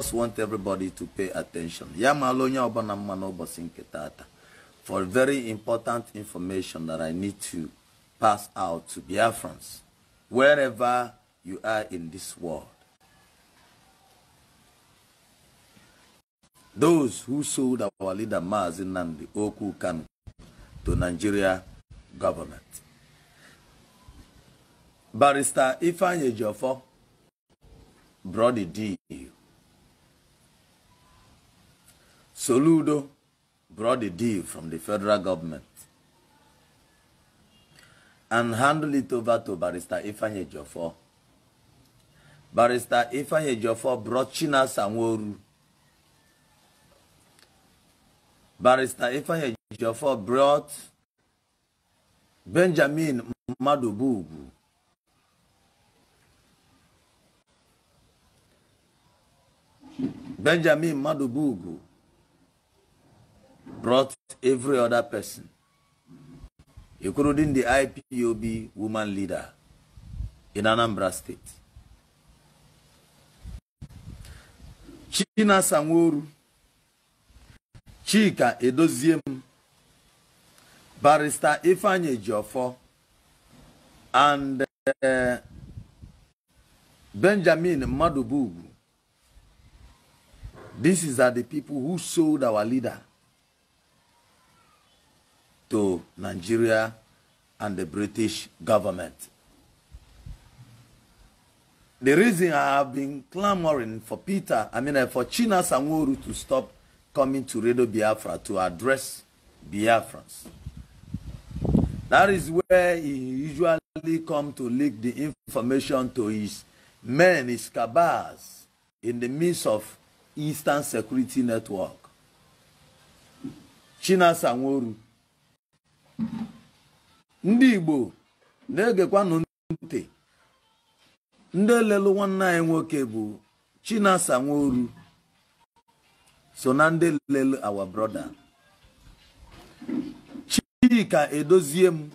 just want everybody to pay attention for very important information that I need to pass out to Biafrans wherever you are in this world. Those who sold our leader Mazi Nandi Oku can to Nigeria government. Barrister Ifanye Yejofo, brought the deal Soludo brought the deal from the federal government and handed it over to Barrister Ifanye Jofo. Barrister Ifanye Jofo brought China Sanworu. Barrister Ifanye Jofo brought Benjamin Madobugu. Benjamin Madobugu brought every other person, including the IPOB woman leader in Anambra State. China Sanworu, Chika Edoziem, Barrister Ifanye Jofo, and uh, Benjamin This is are the people who sold our leader to Nigeria and the British government. The reason I have been clamoring for Peter, I mean uh, for China Sanworu to stop coming to Radio Biafra to address Biafrans. That is where he usually come to leak the information to his men, his cabals, in the midst of Eastern Security Network. China Sanworu ndị igbo na-egekwanụ ntị ndị lelu nwanne anyị nwoke bụ chinasa nworu so na ndị lelu our brother chika edozie m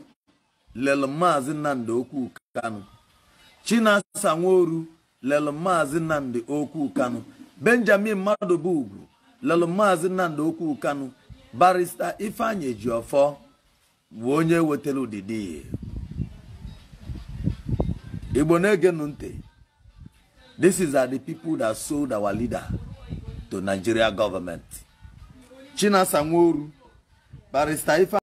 lelu maazị nnamdị okwu kanụ chinasa nworu lelu maazị nnamdị okwu kanụ benjamin mmadụ bụ ugwu maazị nnamdị okwu kanụ barista ifeanyi ofe. wee onye wetara udidi igbo na-egenu ntị this is are the people that sold our leader to nigeria government chinasa nworu barrister ife